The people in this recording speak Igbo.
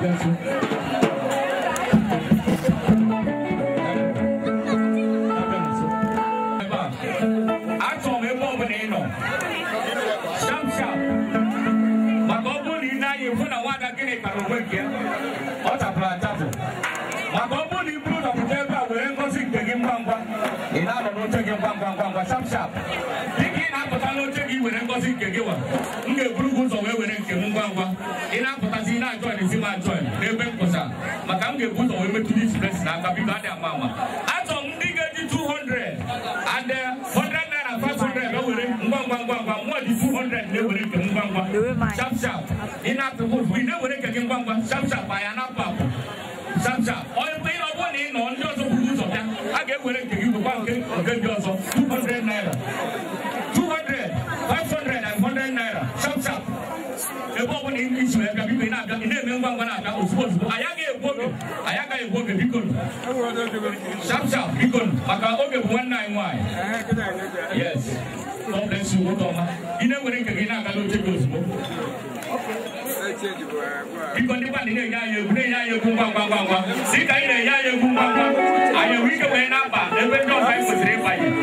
achọrọ m ebe bụla ị nọ shap shap maka ọ na ị naghị na gịnị kpara onwe nke ọ tapụrụ atapụ maka ọ bụrụ na ebe a were ngozi nke gị ngwa ngwa ị na-anọ ngwa ngwa ngwa dịka ị na-apụta n'oche gị were ngozi nke gị wa m ga-eburu gị ụzọ ngwa ngwa ị na-apụtazi na-ajọin ezi m ajọin n'ebe mkpọsa maka m ga-ebuta onwe metụ dị chibesi n'aka biko adị ama ama achọrọ m ndị ga-eji 200 adị 100 naira 500 ewere ngwa ngwa ngwa ngwa mụọ dị 200 na-ewere nke ngwa ngwa shap ị na-apụ ụfụ ị na-ewere nke gị ngwa ngwa shap anya na-apụ apụ shap shap onye ọ bụrụ na ị nọ ndị ọzọ buru ụzọ bịa a ga-ewere nke gị bụkwa nke nke ndị ọzọ 200 naira ibe na eme ngwa ngwa na ozugbo ozugbo anyị agaghị egwu oge anyị egwu oge biko sharp biko maka oge bụ nwanne nwaanyị yes God bless you na-ewere nke gị na-agala oche gị ozugbo biko ndị na-enye anyị egwu na-enye anyị egwu ngwa ngwa ngwa ngwa dị ka anyị na-enye anyị egwu ngwa ngwa anyị enwe ike wee na-aba ebe ndị ọzọ anyị kwesịrị ịbanye